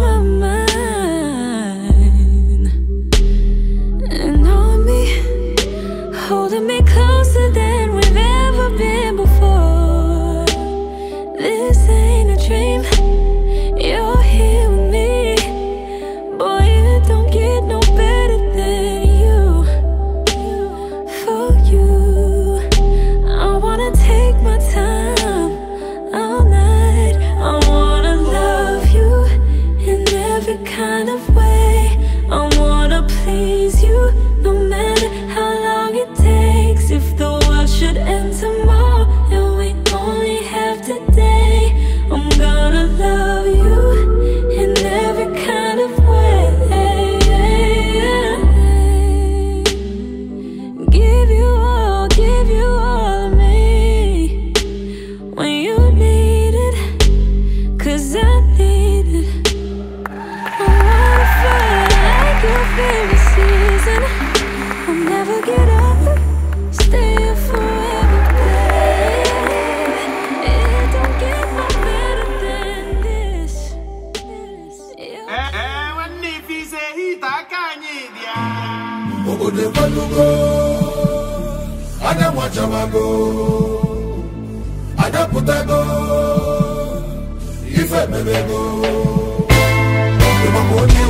mama love. obodo ebalugo anya nwachabago putago, ife emebego ịmakwa onye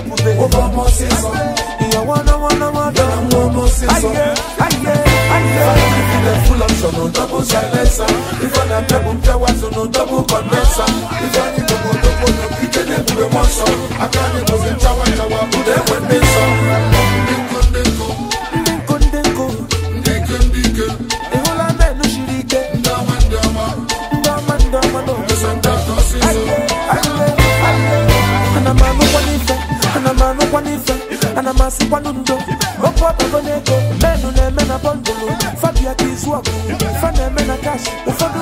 poupée, poupée. Oh, wanna, wanna, wanna. Yeah, maman, Full double i a i ana a ndụ okwu ọbago na ego menụ na-eme bondulu fa bịa ka ụfọdụ